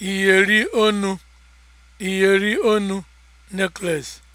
iyeri onu. iyeri onu necklace